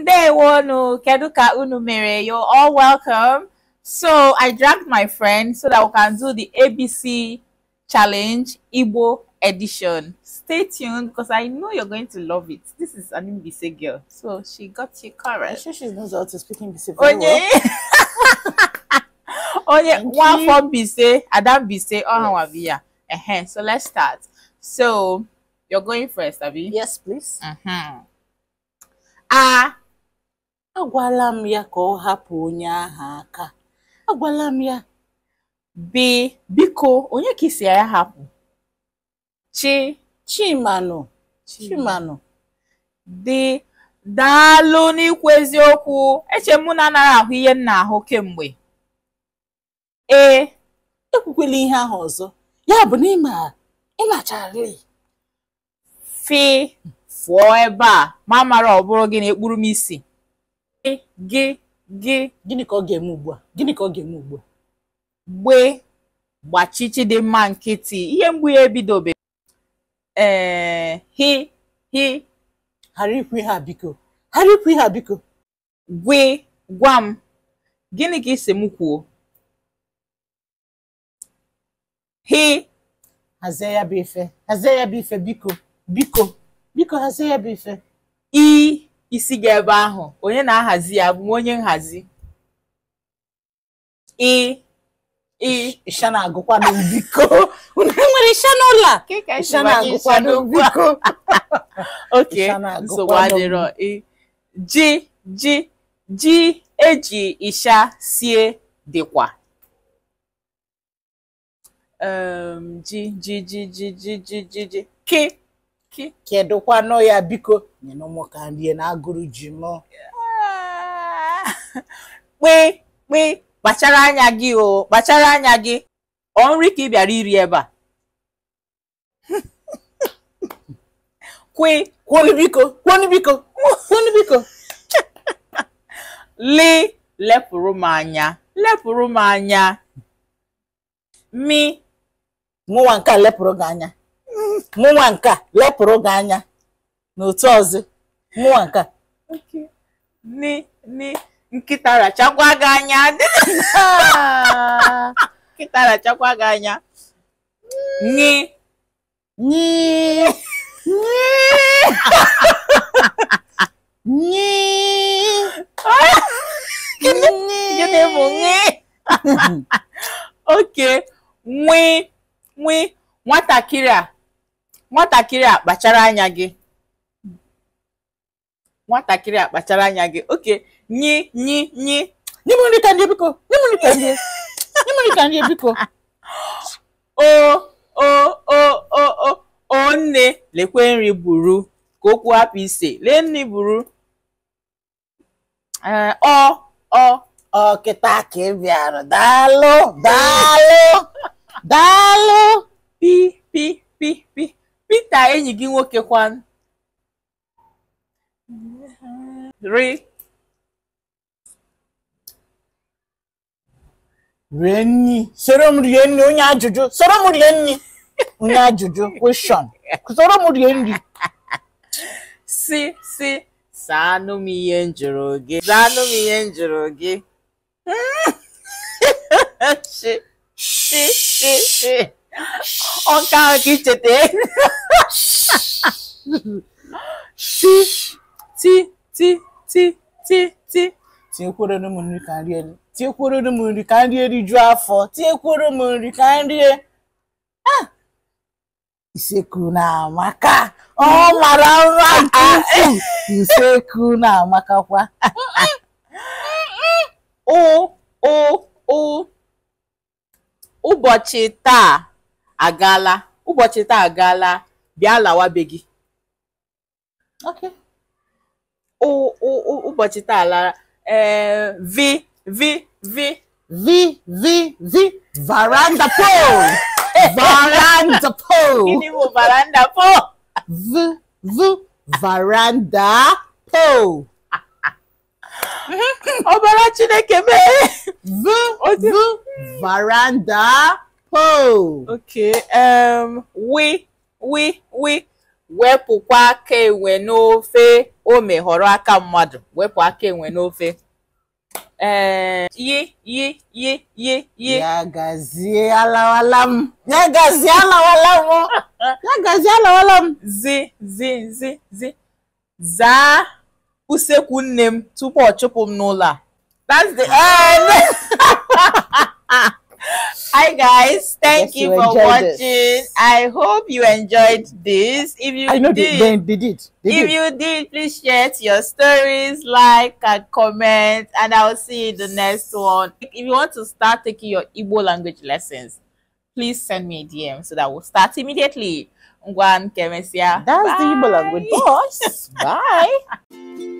ndewo no ka unu mere you're all welcome so i dragged my friend so that we can do the abc challenge igbo edition stay tuned because i know you're going to love it this is an mbc girl so she got you correct i'm sure she knows how to speak mbc very Onye. well Onye, one from bc adam bc oh yes. uh -huh. so let's start so you're going first abby yes please uh mm-hmm. -huh. ah agwala m ya ka ọ hapụ onye aha aka agwala m ya bi biko onye ka isi ya hapụ chi chimanụ chimanụ dị daalụ n'ikwu eziokwu eche m na anaghị ahụ ihe nna ahụ kemgbe ee ekwukwela ihe ahụ ọzọ ya bụ na ịma ịmachara fi fụọ ebe a ma mara ọ bụrụ gị na ekpuru m isi gị gị gị gịnị ka ọ ga-eme ugbu a gịnị ka ọ ga-eme ugbu a gbee gbachichi dị mma nkịtị ihe mgbu ya ebidobe ee hi hi ghara ikwu ihe a biko ghara ikwu ihe a biko gwe gwa m gịnị ka isi m kwuo hi hazie ya bụ ife hazie ya bụ ife biko biko biko hazie ya bụ ife isi gị ebe ahụ onye na-ahazi ya bụ m onye nhazi ị ị ishana agụkwado biko unu nwere ishana ụlọ agụkwa agụkwado biko oke nsogbu adịrọ ji ji ji eji isha sie dịkwa ji ji ji ji ji ji ji ji ki kedu kwanu ya biko nyina ụmụ ka nrie na agụrụ ji mụ kpe kpe kpachara anya gị o kpachara anya gị ọ nri ka ị bịara iri ebe a kwe kwonu biko kwonu biko kwonu biko li lepụrụ m anya lepụrụ m anya mi nwụwa nke a lepụrụ gị anya mụnwa nke lepụrụ gị anya n'otu ọzọ mụnwa nke ni ni nkịta rachakwa gị anya nkịta rachakwa gị anya nyi nyi nyi nyi gịnị bụ nyi oke nwi nwi nwatakịrị a nwatakịrị a kpachara anya gị nwatakịrị a kpachara anya gị oke nyi nyi nyi nye m nri ka ndị biko nye nri ka ndị nye m nri ka ndị biko o o o o o nne lekwe nri buru ka okwu hapụ ise lee nri buru e, ọ ọ ọ kịta ka ị bịara daalụ daalụ daalụ pi pi pi pi enyi gị nwoke kwan ri rie nri soro m rie nri onye ajụjụ soro m rie nri onye ajụjụ kweshọn soro m rie nri si si saanụ m ihe m jụrụ gị saanụ m ihe m jụrụ gị si si si ọka ka icheta ti ti ti ti ti ti tinyekwere m nri ka nri elu tinyekwere m nri ka nri eriju afọ tinyekwere m nri ka nri e. ah! iseku na-amaka ọ mara mma nke ukwuu iseku na-amakakwa o o o ụbọchị taa agaala ụbọchị taa agaala bịa lawa be gị okay ụbọchị taa lara ee vi vi vi vi vi vi varanda pole varanda pole gịnị bụ varanda pole v v varanda pole ọbara Chineke mee v v varanda Ho. Okay. Um, we, we, we. Wepụkwa aka enwe n'ofe o meghọrọ aka mmadụ. Wepụ aka enwe n'ofe. yi, yi, yi, yi, yi. Ya alawala m. Ya alawala m. Ya alawala m. Zi, zi, zi, zi. Zaa usekwu nne m tupu ọ chụpụ m n'ụlọ a. Hi guys, thank you, you, for watching. This. I hope you enjoyed this. If you I know did, they, they did. They if did. you did, please share your stories, like and comment, and I'll see you in the next one. If you want to start taking your Igbo language lessons, please send me a DM so that we'll start immediately. Ngwan Kemesia. That's Bye. the Igbo language boss. Bye.